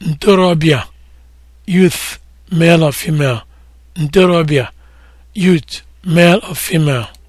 ntorobịa youth male or female ntorobịa youth male or female